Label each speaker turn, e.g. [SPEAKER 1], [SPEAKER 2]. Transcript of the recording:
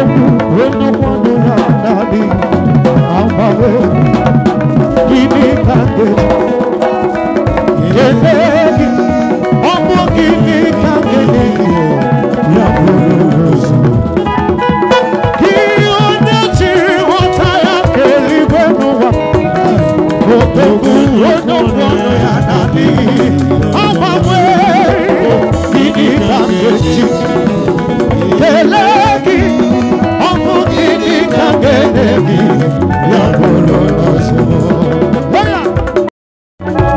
[SPEAKER 1] When no one